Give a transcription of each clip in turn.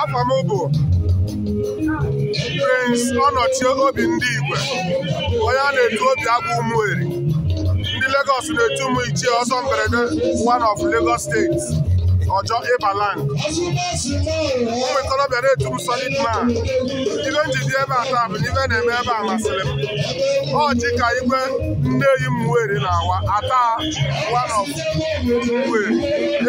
afọ m bụ Prince ọnọchi Obi Ndị Igwe onye a na-etu obi agwa Ụmụeri ndị Lagos na-etu ụmụ ichie ọsọ mberede one of Lagos steeti ọjọ ịbaland ụmụ ikorobịa na-etu m solid man ibe m ji dị ebe a taa bụ n'ibe na-eme ebe a masịrị m ọ ji ka igwe nne yi m were na-awa ata one of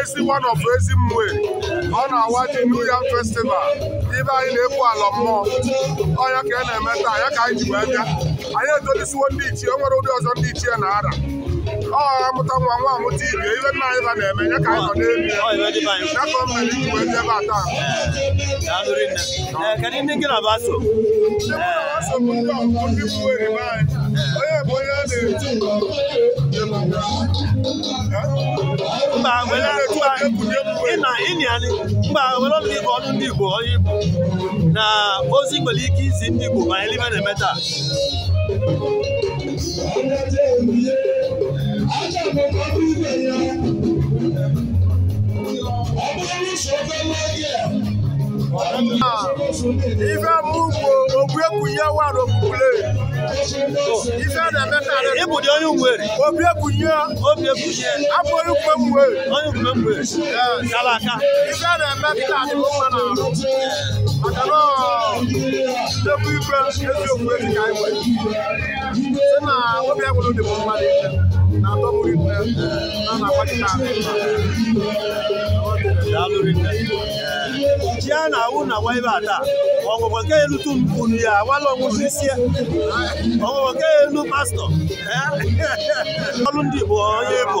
ezi one of ezi mweri ọ na-awa dị New Yam festival ibe anyị na-ekwu ala mmụọ ọya ka a e na-eme taa ya ka anyị ji wee bịa anyị etolisiwo ndị ichie o nwere ụdị ọzọ ndị ichie na-ara ọ nwa nwa amụta ibe ibe nna anyị na-eme ya ka anyị nọ n'elu ya ka mmiri mere iji dị ebe a taa kedụ a na bụ ndị mba ọnụ igbo ọnụ ndị igbo onye igbo na ozi nwere ike izi ndị igbo ma anyị na-eme taa àgbẹ̀kọ̀ bí ibẹ̀ yẹn. Ọmọ oníṣòwò fẹ́ lọ́yẹ̀. Ife mugu ogbe kunye wa n'okpukpule. Ife na-eme ka ala. Ịbụ dị onye nwere. Obie kunye. Obie kunye. Afọ ikwe mwe. Onye ikwe mwe. Kala aka. Ife na-eme ka ala dị mma n'ahụ. Maka na ọ. eziokwu eji ka anyị nwere site na obi agwụrụ dị mmadụ ike na atọ mụrụ ikpe na na-agbachite ji a na-awụ na agba ebe a taa ọgwụgwọ nke elutu unu ya awala ọnwụzi isi ọgwụgwọ nke elu pastọ ọrụ ndị bụ onye ebo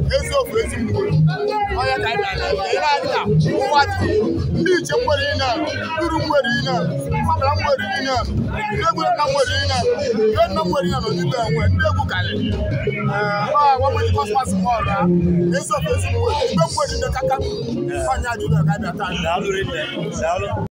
eziokwu ezigbo onye ka anyị na ụwa dị ndị iche nwere ihe uru nwere ndị egwu nna ihe nna ndị egwu karịrị agbanweghị kọsmas onye ọga bịa taa